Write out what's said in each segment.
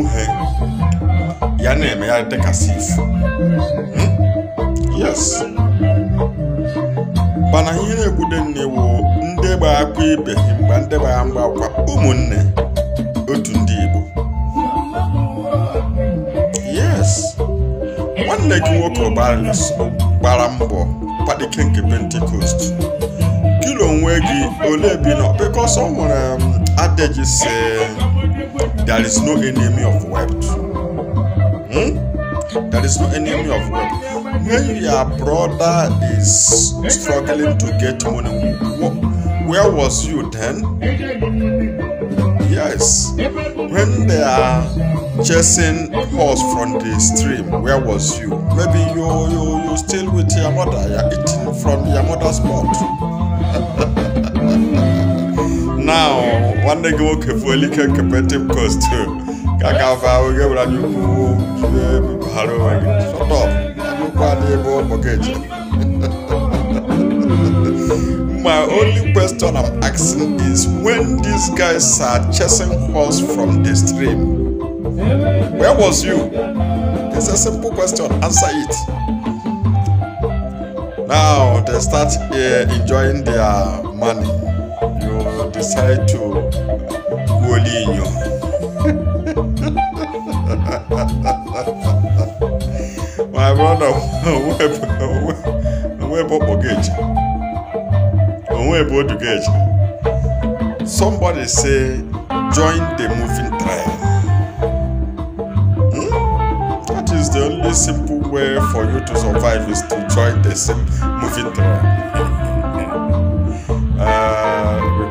nwunye ya na-eme ya dịka sif hmm? yes mana ihe na-ekwude nnewo ndị gba akwa ibe mgbe ndị gbara mgba akwa ụmụnne otu ndị Igbo yes nwanne gị nwoke gbara mbọ kpadike nke pentekost kilo onwe gị ole bi nọ because ọ nwere um, adeji si There is no enemy of wealth. Hmm? There is no enemy of wealth. When your brother is struggling to get money, where was you then? Yes. When they are chasing horse from the stream, where was you? Maybe you you you still with your mother, you're eating from your mother's mouth. nwanne gị nwoke fuelike kepetiv kostu ka ka afa ahụ gị were anya ukwu jide ebibaghara onwe gị sọtọp anya ukwu adị ebe ụmụ gị eje My only question I'm asking is when these guys are chasing horse from the stream, where was you? It's a simple question, answer it. Now they start uh, enjoying their money prophesied to Golinho. My brother, Webo Ogage. Webo Somebody say, join the moving tribe. Hmm? That is the only simple way for you to survive is to join the same moving tribe.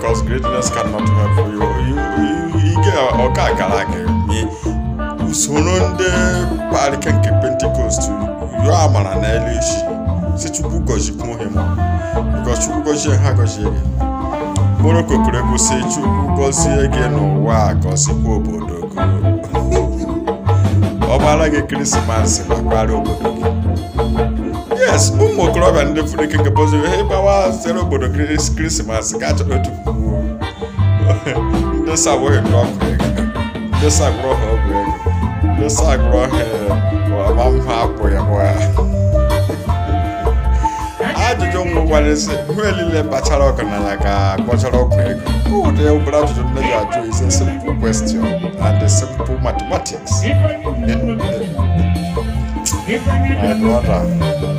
because greatness cannot help you ọka gara gị usoro ndị parike nke pentikọst yọọ amara ha because chukwu gọzie ha gọzie gị n'ụwa obodo ọ gbara gị krismas ma obodo gị as ụmụ okorobịa ndị furu ike nke boziri ha ịgbawa obodo krismas ka achọrọ otu puku ndị sa abụghị ego ndị sa ha ọgwụ ego ndị sa agụrụ ya gwa ya ajụjụ nwụkwara hụ elile bachara ka kpọchara ọkụ ego ụdị obere ajụjụ nne ajụ ise question and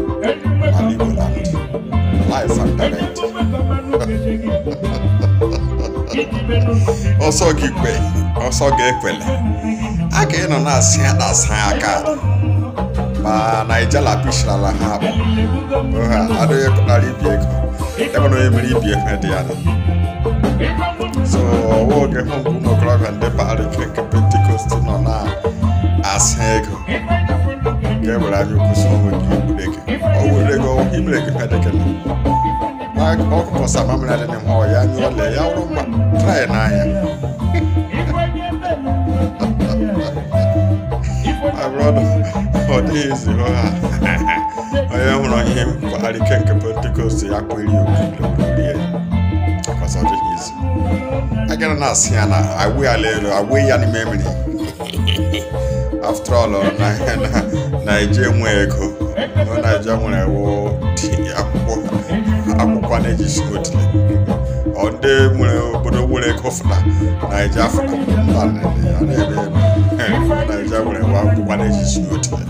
life and ọsọ gị ekwele a ka ịnọ na-asị asa aka ma naijala pishirala ha akpọ a adịghị pụtara ibi ego ebe na onye mere ibi dị ya so ọwa oge hụ mgbe ụmụ okorobịa ndị parik nke pentikọst nọ na asa ego nke were anya ukwu berɛ kepɛ dɛ kɛlɛ ɔkpɔ sama mena de ne hɔ ɔyɛ anyɛ ɔlɛ ya woro ma traɛ na ayɛ abrɔdɔ ɔde esi hɔ a ɔyɛ hono ihe mkpari kenke pentecost ya kweli okuleolie akwasaje yesu agana na asiana awe alelo awe ya ni after all naija enwe ego naija nwere akwụkwọ na-eji sodile ọ ndị nwere obodo nwere ego fụna naija fụna mba ya na-eme ebe eh, naija nwere akwụkwọ na-eji sodile